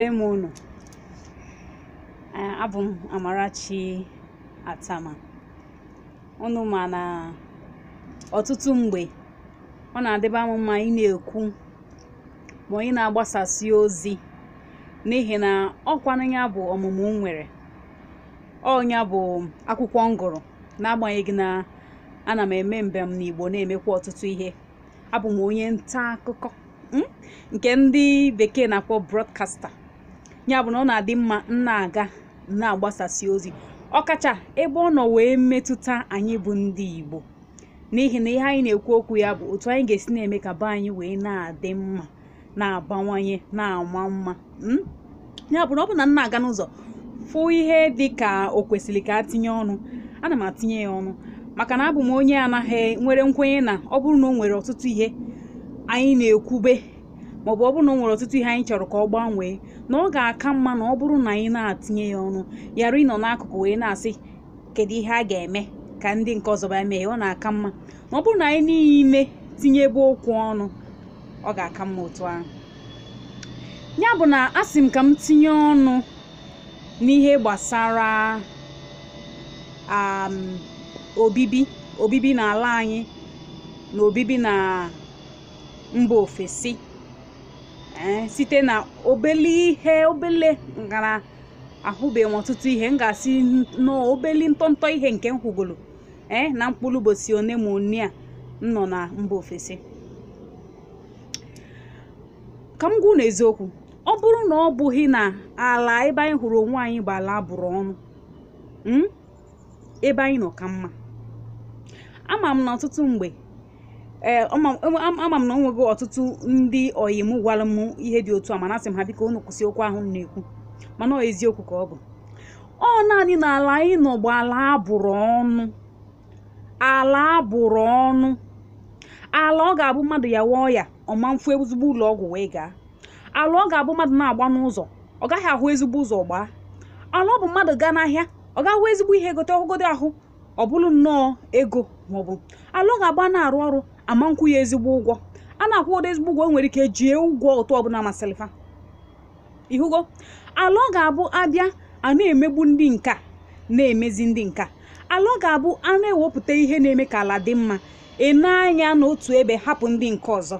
m unu abụ m Amarachi Atama unu ma na ọtụtụ mgbe ọ na-adịba m mma ị na-ekwu ma onye na-agbasasị ozi n'ihi na ọkwanụ ya bụ ọmụmụ nwere ọnya bụ akwụkwọ m gụrụ n'agbanyeghị na ana m eme mbem n'Igbo na-emekwa ọtụtụ ihe abụ m onye nta akụkọ hmm, nke ndị bekee na-akpọ broadcaster ya bụ na ọ na-adị mma na-aga na-agbasasị ozi ọkacha ebe ọ nọ wee metụta anyị bụ ndị Igbo n'ihi na ihe anyị na-ekwu okwu ya bụ otu anyị ga-esi na-eme ka be anyị wee na-adị mma na-abawanye na-ama mma hmm? ya bụ na ọ bụ na nna aga n'ụzọ fụ ihe dị ka o kwesịrị ka a tinye ọnụ ana m atinye ya ọnụ maka na abụ m onye anaghị nwere nkwenye na ọ bụrụ na o nwere ọtụtụ ihe anyị na-ekwube maọbụ ọ bụrụ na ọ nwere ọtụtụ ihe anyị chọrọ ka ọ gbanwee na ọ ga-aka mma na ọ bụrụ na anyị na-atinye ya ọnụ yara ịnọ n'akụkụ wee na-asị kedu ihe a ga-eme ka ndị nke ọzọ bịa mee ọ na-aka mma na ọ bụrụ na anyị niile tinye ebe okwu ọnụ ọ ga-aka mma otu ahụ ya bụ na asị m ka m tinye ọnụ n'ihe gbasara um, obibi obibi n'ala anyị na obibi na mba ofesi Eh, site na obele ihe obele ngara ahụbeghị m ọtụtụ ihe m ga-asị n'obeli ntọntọ ihe nke m eh, na mkpụrụ ụbọchị one ma one a m nọ na mba ofesi ka m gwụ na eziokwu ọ bụrụ na ọ bụghị na ala ebe anyị hụrụ onwe anyị bụ ala bụrụ ọnụ hmm, ebe anyị nọ ka mma ama m na ọtụtụ mgbe ee eh, ama m na ọ nweghị ọtụtụ ndị oyi m gwara m ihe dị otu a mana asị m ha biko onu kwụsị okwu ahụ m na-ekwu mana ọ eziokwu ka ọ bụ ọ naanị na ala anyị nọ bụ ala abụrụ ọnụ ala abụrụ ọnụ ala ọ ga-abụ mmadụ ya wụọ ya ọma mfu ezigbo ụlọ ọgwụ wee gaa ala ọ ga-abụ mmadụ na-agba n'ụzọ ọ gaghị ahụ ezigbo ụzọ gbaa ala ọ bụ mmadụ gaa n'ahịa ọ gahụ ezigbo ihe gote ọgụgodo ahụ ọ bụrụ nnọọ ego maọbụ ala ọ ga-agba na-arụ ọrụ ama nkwụ ya ezigbo ụgwọ a na-akwụ ụdị ezigbo ụgwọ nwere ike jie ụgwọ ụtọ ọbụla masịrị fa ihugo ala ọ ga-abụ abịa a na-emegbu ndị nka na-emezi ndị nka ala ọ ga-abụ a na-ewepụta ihe na-eme ka ala dị mma ene anya n'otu ebe hapụ ndị nke ọzọ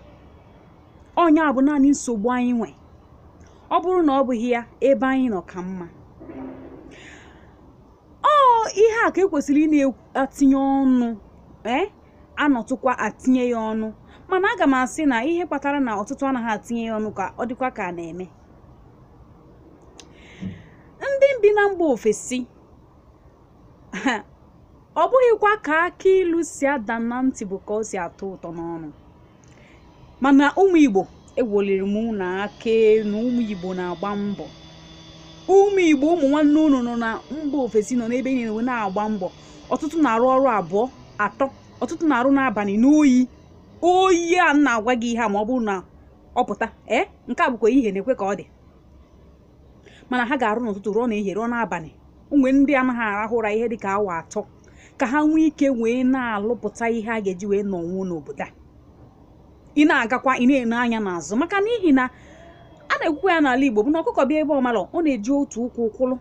ọnya bụ naanị nsogbu anyị nwe ọ bụrụ na ọ bụghị ya ebe anyị nọ ka mma ọ ihe a ka ekwesịrị ị na-atinye ọnụ eh? anọtụkwa atinye ya ọnụ mana aga m asị na ihe kpatara na ọtụtụ anaghị atinye ya ọnụ ka ọ dịkwa ka a na-eme ndị bi na mba ofesi ọ bụghịkwa ka aka ilu si ada na ntị bụ ka ọ si atọ ụtọ n'ọnụ mana ụmụ Igbo ewoliri m na aka na ụmụ Igbo na-agba mbọ ụmụ Igbo ụmụ nwanne unu nọ na mba ofesi nọ n'ebe niile na-agba mbọ ọtụtụ na-arụ ọrụ abụọ atọ ọtụtụ na-arụ n'abalị n'oyi oyi a na-agwa gị ihe a ma ọ bụrụ na ọ pụta ee nke a bụkwa ihe na-ekwe ka ọ dị mana ha ga-arụ n'ụtụtụ rụọ na ehie rụọ n'abalị mgbe ndị anaghị arahụ ụra ihe dịka awa atọ ka ha nwee ike wee na-alụpụta ihe a ga-eji wee nọ nwuo n'obodo a ị na-agakwa ị na-ene anya n'azụ maka n'ihi na a na-ekwukwa ya n'ala Igbo bụ na ọkụkọ bịa ebe ọmalọ ọ na-eji otu ụkwụ ụkwụlụ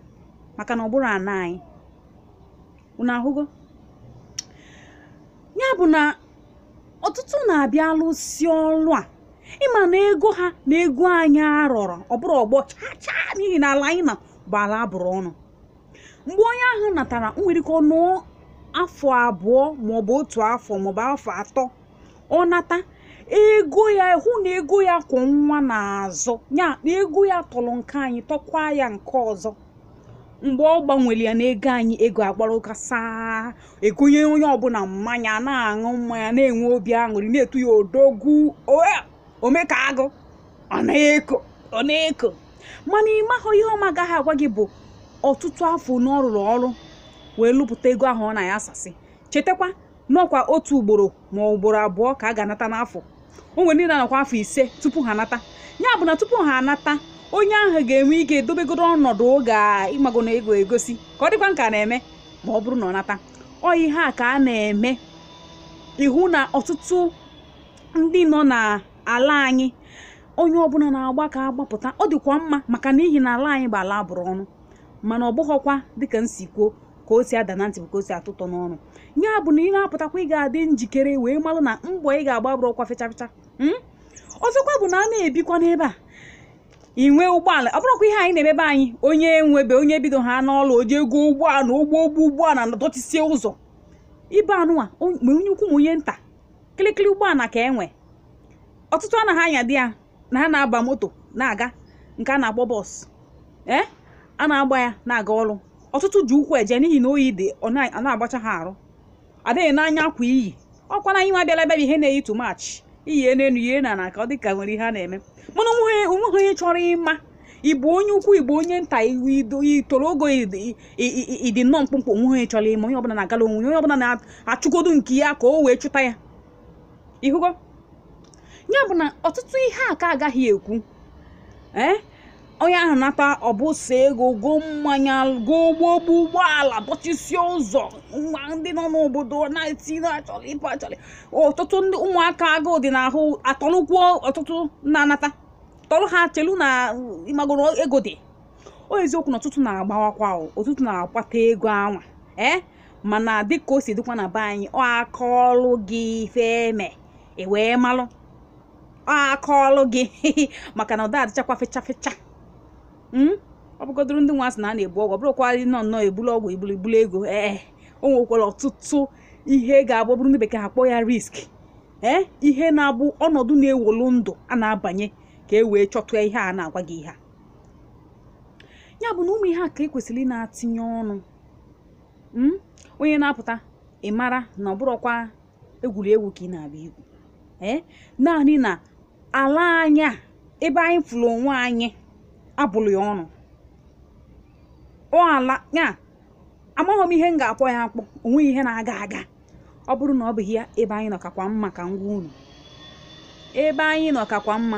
maka na ọ bụrụ ana anyị unu ahụgo ya bụ na ọtụtụ na-abịa alụsi ọrụ a ịma na ego ha na ego anyị arọrọ ọ bụrụ ọgbọ chaa chaa n'ihi na ala anyị na bụ ala abụrụ ọnụ mgbe onye ahụ natara nwere ike ọnụ afọ abụọ maọbụ otu afọ maọbụ afọ atọ ọ nata ego ya hụ na ego ya kwụ nwa n'azụ ya na ego ya tọrọ nke anyị tọkwa ya nke ọzọ mgbe ọ gbanwere ya na ego anyị ego agbara ụka saa egonye onye ọbụla mmanya na-aṅụ mmanya na-enwe obi aṅụrị na-etu ya odogwu omeka e, agụ ọ na-eko mana ịmahụ ihe ọma agaghị agwa gị bụ ọtụtụ afọ na ọ rụrụ ọrụ wee lụpụta ego ahụ ọ na ya asasị chetakwa n'ọkwa otu ugboro ma ugboro abụọ ka a ga-anata n'afọ o nwere ndị na afọ ise tupu ha anata ya bụ na tupu ha anata onye ahụ ga-enwe ike edobegoro ọnọdụ oge ịmago na ego egosi ka ọ dịkwa nka na-eme ma ọ bụrụ na ọ nata ọ ihe a ka a na-eme ihu na ọtụtụ ndị nọ n'ala anyị onye ọbụla na-agba ka agbapụta ọ dịkwa mma maka n'ihi na ala anyị bụ ala abụrụ ọnụ mana ọ bụghọkwa dịka nsikwo ka o si ada na ntị bụ ka o si atụtọ n'ọnụ ya bụ na ị na-apụtakwa ị ga-adị njikere wee malụ na mgbọ ị ga-agba bụrụ ọkwa fechafecha hmm? ọzọkwa bụ na a na-ebikwa n'ebe a inwe ụgbọala ọ bụrụkwa ihe anyị na-emebe anyị onye nwebe onye bido ha n'ọla oji ego ụgbọala ụgbọ ụgbọ ụgbọala na dọtisie ụzọ ibe anụwa ma onye ukwu ma onye nta kịlịkịlị ụgbọala ka enwe ọtụtụ anaghị anya dị ya na ha na-aba moto na-aga nke a na agbọ bọs e, a na-agba ya na-aga ọrụ ọtụtụ ji ụkwụ eje n'ihi na oyi dị ọ na-agbacha ha arụ adịghị n'anya akwa iyi ọkwa na anyị nwa bịala ebe ihe na-eyi too much iyi n'elu ihe na na ka ọ dịka nwere ihe a na-eme mana onweghị onye chọrọ ịma ịbụ onye ukwu igbo onye nta itoro ogo ịdị nnọọ mkpụmkpụ onwe onye chọrọ ịma onye ọbụla na-agala onwe onye ọbụla na achụgodu nke ya ka o wee chụta ya ịhụgo ya bụ na ọtụtụ ihe a ka agaghị ekwu ee eh? onye ahụ nata ọbụsa ego goo mmanya goo ụgbọ ụgbọala bọchisie ụzọ ma ndị nọ n'obodo na achọrọ ịpụ achọrọ ọtụtụ ndị ụmụaka agụụ dị n'ahụ atọrụkwuo ọtụtụ na-anata tọrụ ha chelu na ịmagoro ego dị o eziokwu na ọtụtụ na-agbawakwa ọtụtụ na-akwata ego anwa ee mana dịka o si dịkwa na be anyị ọ aka ọrụ gị feme e wee malụ aka ọrụ gị maka na ụda adịchakwa fechafecha Hmm? ọ bụgodoro ndị nwa sị na a na-ebu ọgwụ bụrụkwarị nọ nnọọ ebulu ọgwụ ibulu ibulu ego ee eh, eh, o nwekwara ọtụtụ ihe ga-abụ bụrụ ndị bekee kpọọ ya risk ee eh, ihe na-abụ ọnọdụ na-ewolu ndụ a na-abanye ka e wee chọtụ ihe a na-agwa gị ihe a ya bụ na ụmụ ihe a ka ekwesịrị ị na-atinye ọnụ hmm? onye na-apụta ị mara na ọ bụrụkwa egwuregwu ka ị na-abịa igwu ee naanị na ala anya ebe anyị fụrụ onwe anyị abụlụ ya ọnụ ọ ala ya amaghị m ihe m ga-akpọ ya akpọ onweghị ihe na-aga aga ọ bụrụ na ọ bụghị ya ebe anyị nọ kakwa mma ka ngwa unu ebe anyị nọ kakwa mma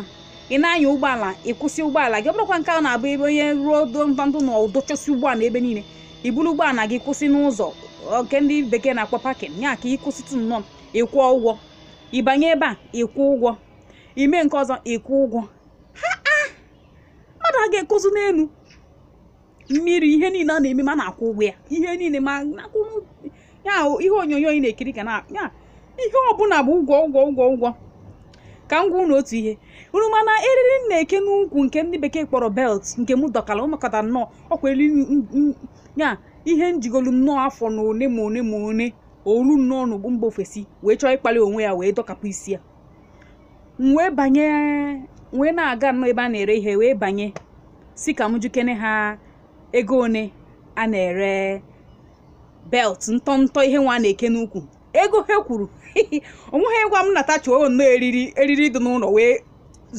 ị na-anya ụgbọala ị kwụsị ụgbọala gị ọ bụrụkwa nke a na-abụ ebe onye ruo ndụ na ụdọchọsi ụgbọala ebe niile i buru ụgbọala gị kwụsị n'ụzọ nke ndị bekee na-akpọ pakin ya ka ị kwụsịtụ nnọọ ịkwụọ ụgwọ ịbanye ebe a ịkwụ ụgwọ ime nke ọzọ ịkwụ ụgwọ a ga-ekozi n'elu mmiri ihe niile a na-eme ma na-akwụ ụgwọ ya ihe niile ma na-akwụ ihe onyonyo ị na-ekiri ka na ya ihe ọbụla bụ ụgwọ ụgwọ ụgwọ ụgwọ ka m gwa unu otu ihe unu mana eriri m na-eke n'ukwu nke ndị bekee kpọrọ belt nke m dọkara ụmụkọta nnọọ ọkwa eri ya ihe njigolu nnọọ afọ na one ma one ma one olu nnọọ n'ugbu mba ofesi wee chọọ ịkpali onwe ya wee dọkapụ isi ya wee banye wee na-aga nnọọ ebe a na-ere ihe wee banye si ka m jikene ha ego one a na-ere belt ntọ ihe nwa na-eke n'ukwu ego ha kwuru onweghị gwa m natacha o nnọọ eriri eriri dị n'ụlọ wee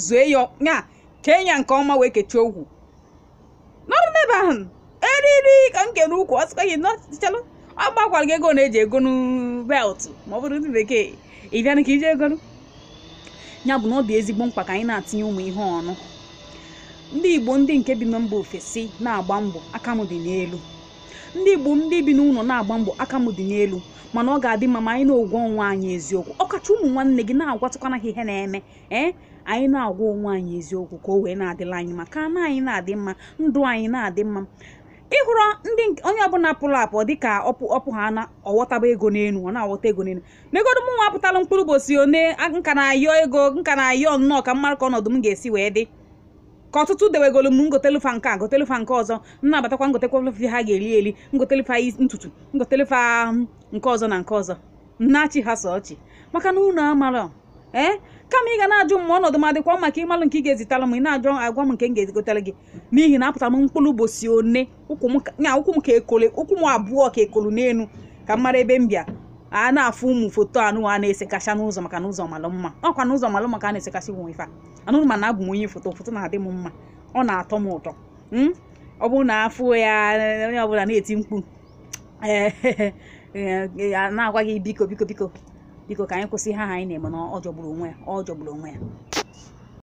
zue ya ya kee ya nke ọma wee kechie ogwu nọrụ n'ebe ahụ eriri ka m kere ukwu ọ sịkwa gị ọ gbakwara gị ego na-eji e egonu belt ma ọ bụrụ ndị bekee ị bịa ka ije egonu ya bụ na ọ dị ezigbo mkpa ka anyị na-atinye ụmụ ihe ọnụ ndị igbo ndị nke bi na mba ofesi na-agba mbọ aka m dị n'elu ndị igbo ndị bi n'ụlọ na-agba mbọ aka m dị n'elu mana ọ ga-adị mma ma anyị na-ogwa onwe anyị eziokwu ọkacha ụmụ nwanne gị na-agwatụkwana ha ihe na-eme ee anyị na-agwa onwe anyị eziokwu ka o wee na-adịla anyị ma ka ana anyị na-adị mma ndụ anyị na-adị mma ịhụrụ ndị onye ọbụla pụrụ apụ dịka ọpụ ha na ọghọtaba ego n'elu ọ na-aghọta ego n'elu n'egodo m nwa mkpụrụ bosi one nka na-ayọ ego nka na-ayọ nnọọ ka mmarụ ka ọnọdụ m ga-esi wee dị ka ọtụtụ dewegolu m ngotelu nke a gotelu nke ọzọ m na-abatakwa ngotekwa ha ga-eli eli ngotelu ntutu ngotelu nke ọzọ na nke ọzọ nnachi ha so ọchị maka na unu amara ee kama ị ga na-ajụ m ma ọnọdụ m adịkwa maka ịmalụ nke ị ga ezitala m ị na-ajụ agwa m nke m ga egotere gị n'ihi na apụtara m mkpụrụ ụbọchị one ụkwụ m ka ekole ụkwụ m abụọ ka ekolu n'elu ka m mara ebe m bịa a na-afụ ụmụ foto anụwa a na esekasha n'ụzọ maka n'ụzọ malụ mma ọkwa na ụzọ malụ maka a na-esekasị ụmụ ife anụrụ na abụ m onye foto foto na-adị m mma ọ na-atọ m ụtọ hmm? ọ bụrụ na afụ ya onye ọbụla na-eti mkpu a na-agwa gị biko biko biko biko ka anyị kwụsị ha anyị na-eme na ọ jọgburu onwe ya ọ jọgburu onwe ya